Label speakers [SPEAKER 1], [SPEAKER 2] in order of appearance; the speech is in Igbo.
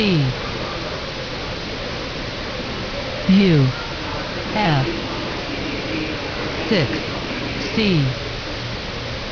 [SPEAKER 1] see U F six C